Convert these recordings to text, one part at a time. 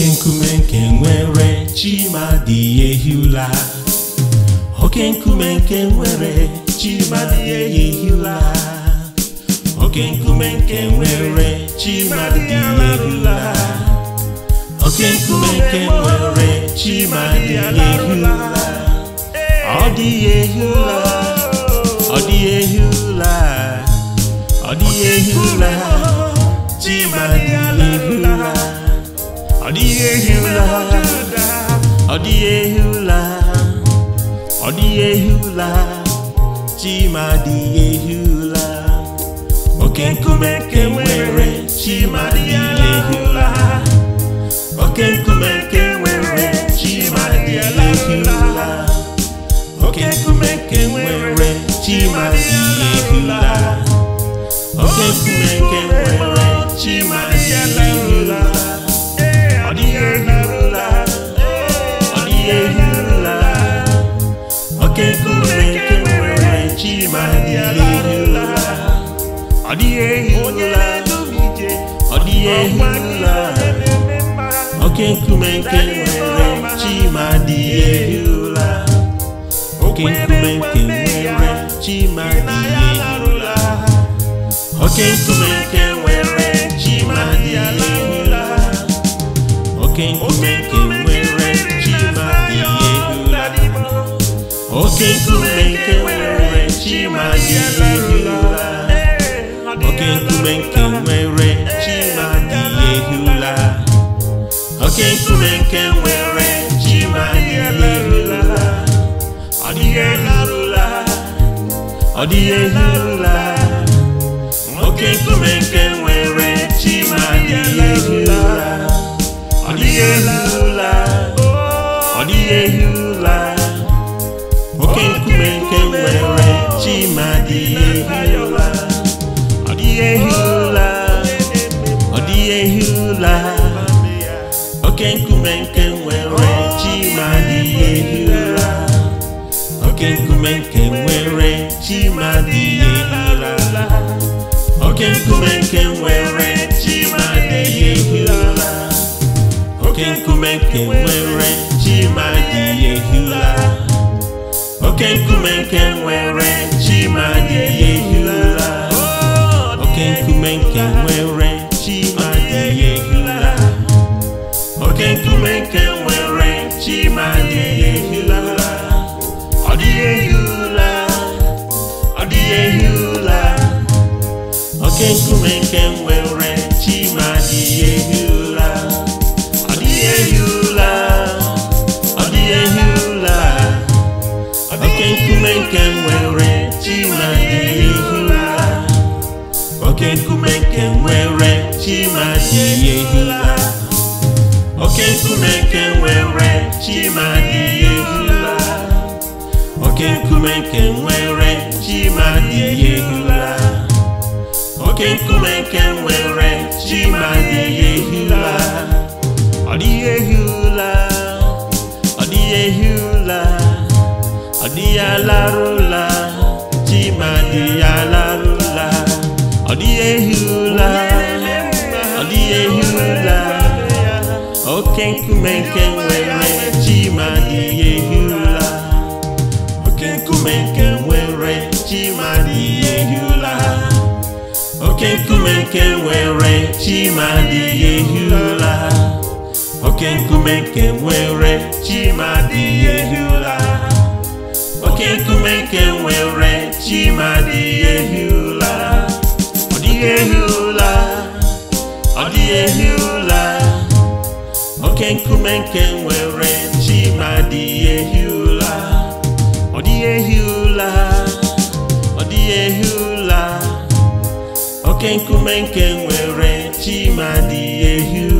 oke nkume nke nwere ehi ụla oke nkume nke nwere ehi ụla oke nkume nke nwere ehi ụla oke nkume nke nwere ehi ụla ọ dịghị ụla ọ dịghị ụla ọ dịghị ụla. ọ dịghị ehi ụla ọ dịghị ehi ụla ọ dịghị ehi ụla chima dịghị ehi ụla oke nkume nke nwere dịghị ehi ụla oke nkume nke nwere chima dịghị ehi ụla oke nkume nke nwere chima dịghị ehi ụla oke nkume nke nwere ọ dịghị ehi ụla ọ oke nkume nke nwere chima dịghị ehi ụla oke nkume nke nwere chima dịghị ehi ụla oke nkume nke nwere oke nkume nke nwere chi ma ihe rula oke nkume nke nwere chi ma ihe rula oke nkume nke nwere chi ma ihe rula oke nkume nke nwere chi ma ihe rula ọ dịghị eharụla ọ dịghị eharụla oke nkume nke nwere ehi ụla ọ dịghị ehi ụla oke nkume nke nwere chima dị ehi ọ dịghị ehi ụla oke nkume nke nwere chima dịghị ehi ụla oke nkume nke nwere chima ụla oke nkume nke nwere chima dị ehula oke nkume nke nwere chima dị ehula oke nkume nke nwere chima dị ehula oke nkume nke nwere chima dị ehula ọ dịghị ehi ehula ọ dịghị ehi ehula oke nkume nke nwere chima dị ehula oke nkume nke nwere chimadị oke nkume nke nwere chimadị ehula oke nkume nke nwere chimadị ehula oke nkume nke nwere chimadị ehula ọ dịghị ehula ọ dịghị ehula ọ dịghị alarụla chimadị ala Odiyehula Odiyehula Okenkumenke were Chima Diyehula Okenkumenke were Chima Diyehula Okenkumenke were Chima Diyehula Okenkumenke were Chima Diyehula Okenkumenke were Chima Diyehula dịghị ehi ụla ọ dịghị ehi ụla oke nkume nke nwere chi ma dịghị ụla ọ dịghị ehi ụla ọ dịghị ehi ụla oke nkume nke nwere chi ma dịghị ụla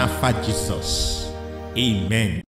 and Jesus. Amen.